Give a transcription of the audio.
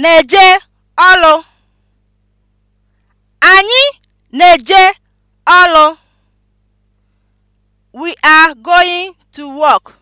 na-eje ọlụ. Anyị na-eje ọlụ. We are going to work.